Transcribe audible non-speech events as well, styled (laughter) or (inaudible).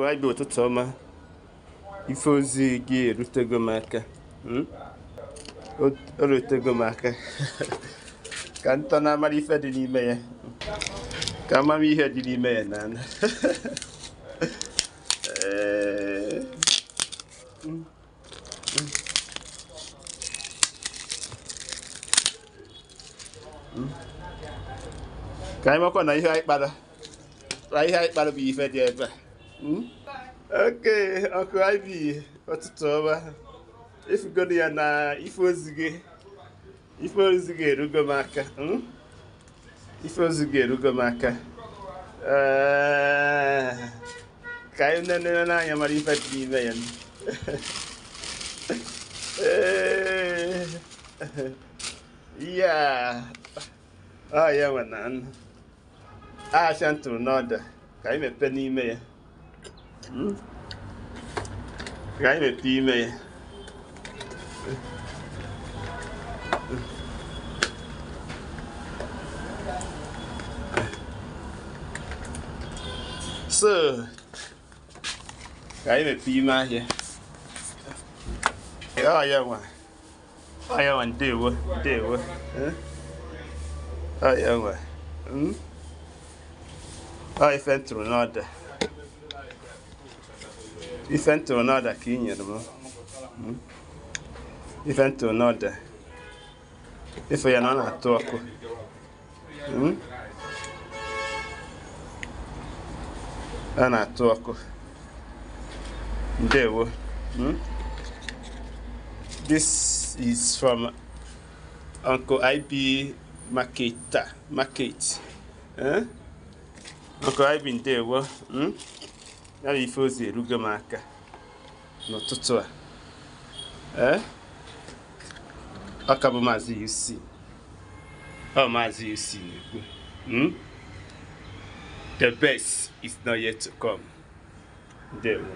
gwa ụtụtụ ọma ife ozi gị erutego m aka hmm? o rutego m aka (laughs) ka ntọ na-amara ife dị n'ime ya ka amara ihe dị n'ime ya n'ala (laughs) hmm. hmm. ka anyị makwa na ihe anyị kpara na ihe anyị kpara bụ ife dị ebe a Hmm? oke ọkụ ivy ọtụtụ ọma efugoro ya na ife ozi ife erugo m aka ife ozi gị erugo m aka hmm? eh, ka anyị nenere n'anya mara ife dị n'ime ya (laughs) eh, ya ọ ya ntụrụ n'ọda ka anyị n'ime ya gái Geile Team, ey. So. Geile Team hier. Ja, ja, man. Ah, ja, man, der, der. Ah, ja, man. Hm? Ah, ich fände es nur noch da. ife ntụrụ n'ọda ka ị nyere m ife ntụrụ n'ọda ife ya na ọ na-atụ ọkụ ọ na-atụ ọkụ ndewo this is from uncle ib marketa market eh? uncle ib ndewo hmm? ya bụ ife ozi erugo m aka n'ụtụtụ a ee eh? ọka bụ maazị UC ọ oh, maazị UC na-ekwu hmm? the best is not yet to come ndewo